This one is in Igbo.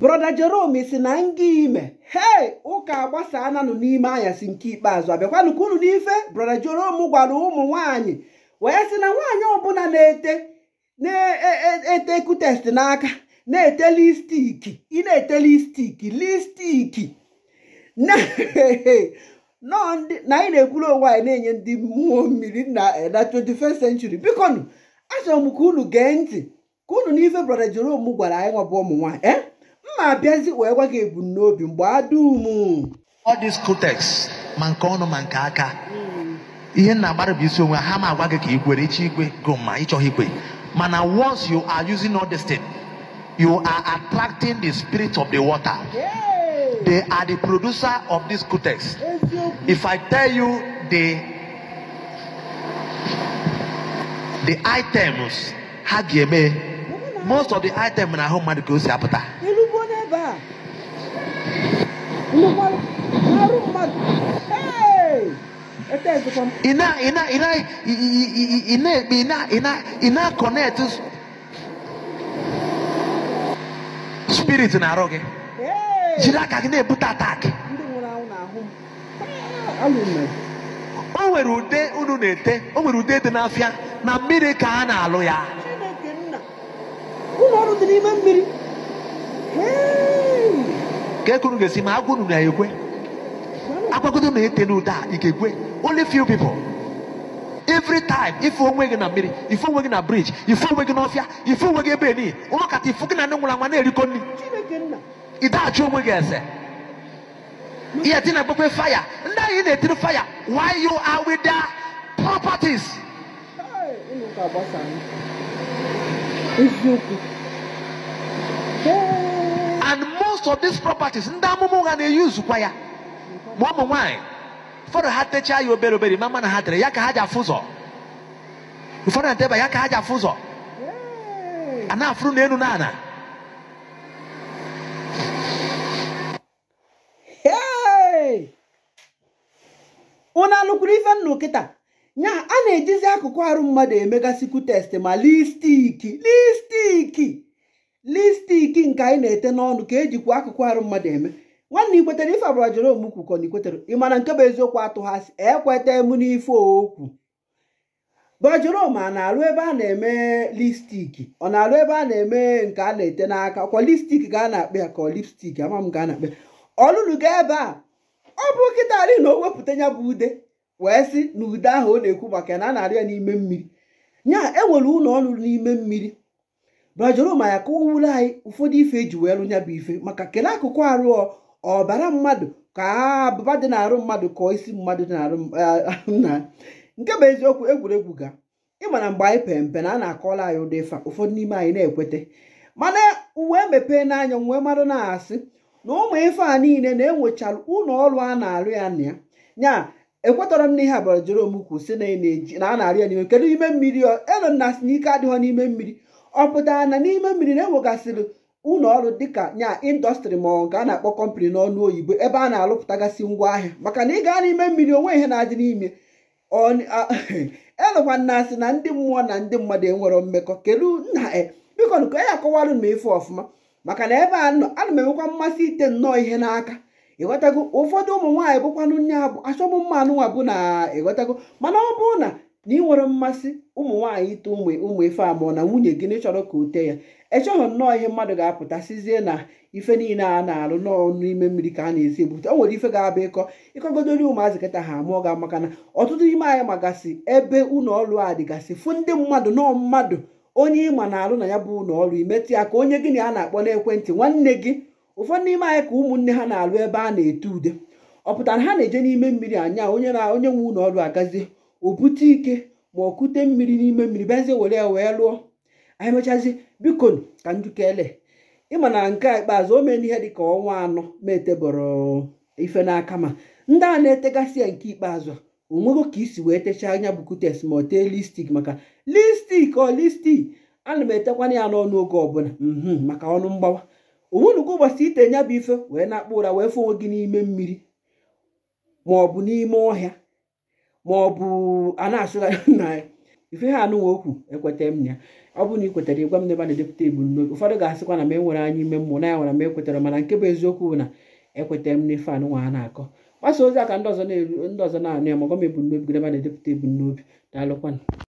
broda jerome si na nga ime hei ụka agbasa nụ n'ime anyasị nke ikpeazụ abịakwanụ ka unu n'ife broda jerome gwara ụmụ nwanyị wee sị na nwaanyị ọbụla na-ete na-ete e, e, kutest n'aka na-ete listiki ị na-ete listiki listiki na anyị na-ekwuru onwe anyị na-enye ndị mmụọ mmiri na 21st eh, century biko achọrọ m ka unu gee ntị ka unu n'ife broda jerome gwara anyị nwabụ ụmụ nwaanyị eh? m abịazi wee gwa gị ebumnobi mgbe adum all this context ma nke ọnụ ma nke aka ihe nna agbara bụ isi onwe ha ma agwa gị ka ikwere ichi igwe go ma ịchọghị ikwe mana once you are using all this thing you are attracting the spirit of the water they are the producer of this context if i tell you the the items ha ga-eme most of the items na ahụ mmadụ ka o si apụta ebe a arụ ina ị na-akọnekt spirit na arụ gị jiri aka gị na-ebute atak o nwere ude unu na-ete o nwere ude dị n'afịa na mmiri ka a na-alụ ya ụlọ ọrụ dị n'ime mmiri nke ga-esi ma agwa unu na ekwe agwagodo na ete n'ụda a ị only few people every time ife onwe gị na mmiri ife onwe gị na bridge ife onwe gị ọfịa ife onwe gị ebe ni ụlọ kata ifu gị na ndị nwụrụ anwa na eriko nri ị daghachi onwe gị eze ihe dị na-agbakwe faya ndị anyị na-etiri faya why you are with their properties eziokwu most of these properties ndị amụma ụgha na-eyuzukwa ya ma ụmụ nwaanyị ụfọdụ ha techaa ya obere obere ma mana ha tere ya ka ha ji afụ ụzọ ụfọdụ na ya ka ha ji afụ ụzọ a na-afụrụ n'elu na ana unu anụkwuru ife nnụ kịta nya a na-ejizi akụkụ arụ mmadụ emegasịkwu test ma listiki listiki lipstik nke anyị na-ete n'ọnụ ka ejikwa akụkụ arụ mmadụ eme nwanne ikwetere ife abụrụ jere omukwu kọ na ikwetere ị mana nke bụ eziokwu atụghasị ekweta emu n'ife okwu bajerom a na-alụ ebe a na-eme lipstiki ọ na-alụ ebe a na-eme nke a na-ete n'aka kwa lipstik ka a na-akpa ya ka ọ lipstik ama m ka a na-akpa ọlụlụ ga ebe a ọ bụ kịta ali na o wepụta ya bụ ude wee sị na ude ahụ ọ na-ekwu maka ya na a na ya n'ime mmiri nya enwere ụlọ ọrụ n'ime mmiri bra Jeroma ya ka o wuru anyị ụfọdụ ife eji wee rụnya bụ ife maka kelee akụkụ arụ ọbara mmadụ ka abụba dị n'arụ mmadụ ka isi mmadụ dị n'arụ nna nke bụ eziokwu egwuregwu ga ịmana mgbe anyị pere mpe na a na-akọla anyị ụdị ife ụfọdụ n'ime anyị na ekweta mana uwe mepee n'anya nwee mmadụ na-asị na ụmụ ife a niile na-enwechara ụlọ ọrụ a na-arụ ya na ya nya ekwetara m n'ihe abara Jeroma kwụ na a na ya n'ime kedu ime mmiri elonna si n'ike adịghọ n'ime mmiri ọ pụtara na n'ime mmiri na-enwegasịrị ụlọ ọrụ dịka nya indọstrị ma ọ ga na-akpọ kọmpani n'ọnụ oyibo ebe a na ngwa ngwaahịa maka na ị gaa n'ime mmiri onwe ihe na-adị n'ime elụkwa na-asị na ndị mmụọ na ndị mmadụ enwero mmekọ kedu nna e, biko ka e ya akọwarụ m ife ọfụma maka na ebe a nọ ana m enwekwa mmasị ite nnọọ ihe n'aka ịghọtago ụfọdụ ụmụ nwaanyị bụkwanụ nne abụ achọmụ mma anụnwa bụ na ịghọtago mana ọ bụrụ na na ị nwere mmasị ụmụ nwaanyị ite ụmụ ụmụ ife amụọ na nwunye gị na chọrọ ka o tee ya echọghị nnọọ ihe mmadụ ga-apụta sizie na ife niile a na-alụ n'ọnụ n'ime mmiri ka a na-esi ebute o nwere ife ga-abụ ịkọ ịkọgodori ụmụazị kịta ha amụọ ga maka na ọtụtụ ime anyị magasị ebe ụnọọrụ a dịgasị fụ ndị mmadụ nọọ mmadụ onye ịma na-alụ na ya bụ ụlọọrụ ọrụ imetụ ya ka onye gịnị a na-akpọ n'ekwentị nwanne gị ụfọdụ n'ime anyị ka ụmụnne ha na-alụ ebe a na-ete ude ọ pụtara ha na-eje n'ime mmiri anya onye na onye nwe ụlọọrụ agazie o bute ike ma okute mmiri n'ime mmiri bịazie were ya wee lụọ anyị mechazi biko ka njukele ịma na nke a ikpeazụ o mee n'ihe dịka ọnwa anọ metebọrọ ife n'aka ma ndị a na-etegasị ya nke ikpeazụ onwego ka isi wee techaa anya kutes ma ọ tee listik maka listik ọ listik ana m etekwana ya n'ọnụ oge ọbụla mhmm, maka ọnụ mgbawa onwenugo ụbọchị ite nya bụ ife wee na-akpọ ụra wee fụ onwe gị n'ime mmiri ma ọ bụ n'ime ọhịa ma ọ bụ a na na ife ha anụnwa okwu ekweta m ya ọ bụrụ na ị kwetara ịgwa m n'ebe a na-edepụta ebumnobi ụfọdụ ga-asịkwa na m enwere anya ime mmụọ na ya nwere m ekwetara mana nke bụ eziokwu bụ na ekweta m n'ife anụnwa a na-akọ mgbasa ozi a ka ndị ọzọ na anụ ya ma gwa m ebumnobi gị ebe a na-edepụta ebumnobi daalụkwanụ